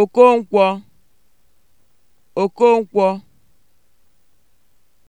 Okonkwo Okonkwo